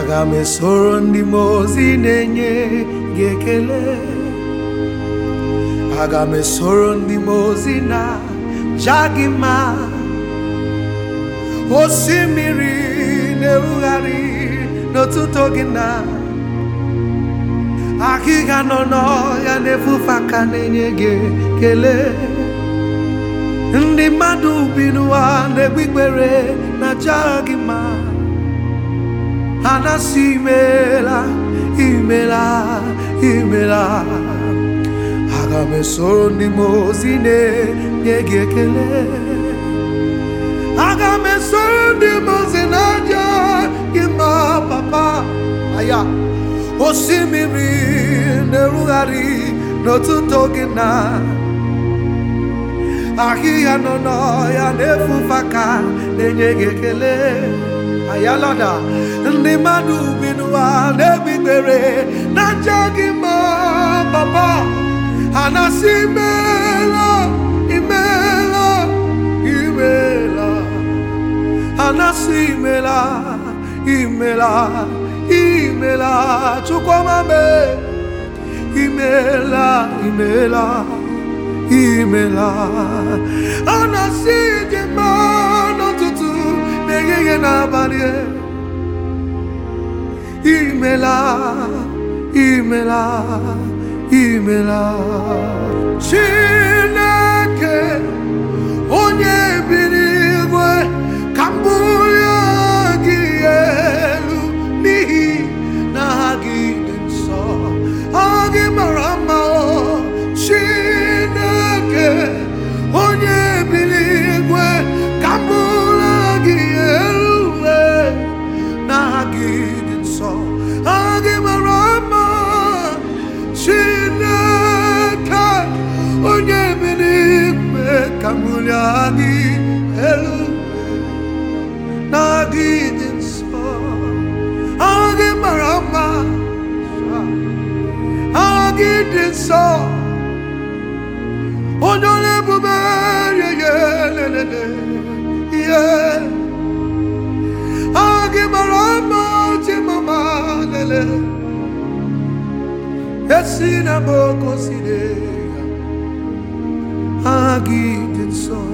aga m esoro ndị m ozi na-enye gị ekele aga m esoro ndị m ozi na ja gị osimiri na-erugharị n'ọtụtụ gị na akịga nọ n'ọhịa na-efufe aka na-enye gị ekele ndị mmadụ bi n'ụwa na-egbe na ja gị ma anasị imela imela imela aga ndị mozi na-enye gị ekele aga ndị mozi ozi na-aja gị ma papa aya osimiri na-erugharị n'ọtụtụ gị na ahịhịa nọ n'ọhịa na efufe ka na-enye gị ekele yalada ndị mmadụ bi n'ụwa na-egbikpere na nje gị ma papa ha na-asị imela. imeela imela, ha na-asị imela imela imela chukwumabe imela imela imela ha na-asị glorie. Imela, imela, imela. ca dị di elu na gidin so agi marama agi din so onye onye bube yeye lelele ye mara mma ti mama lele esi na mo agit in soi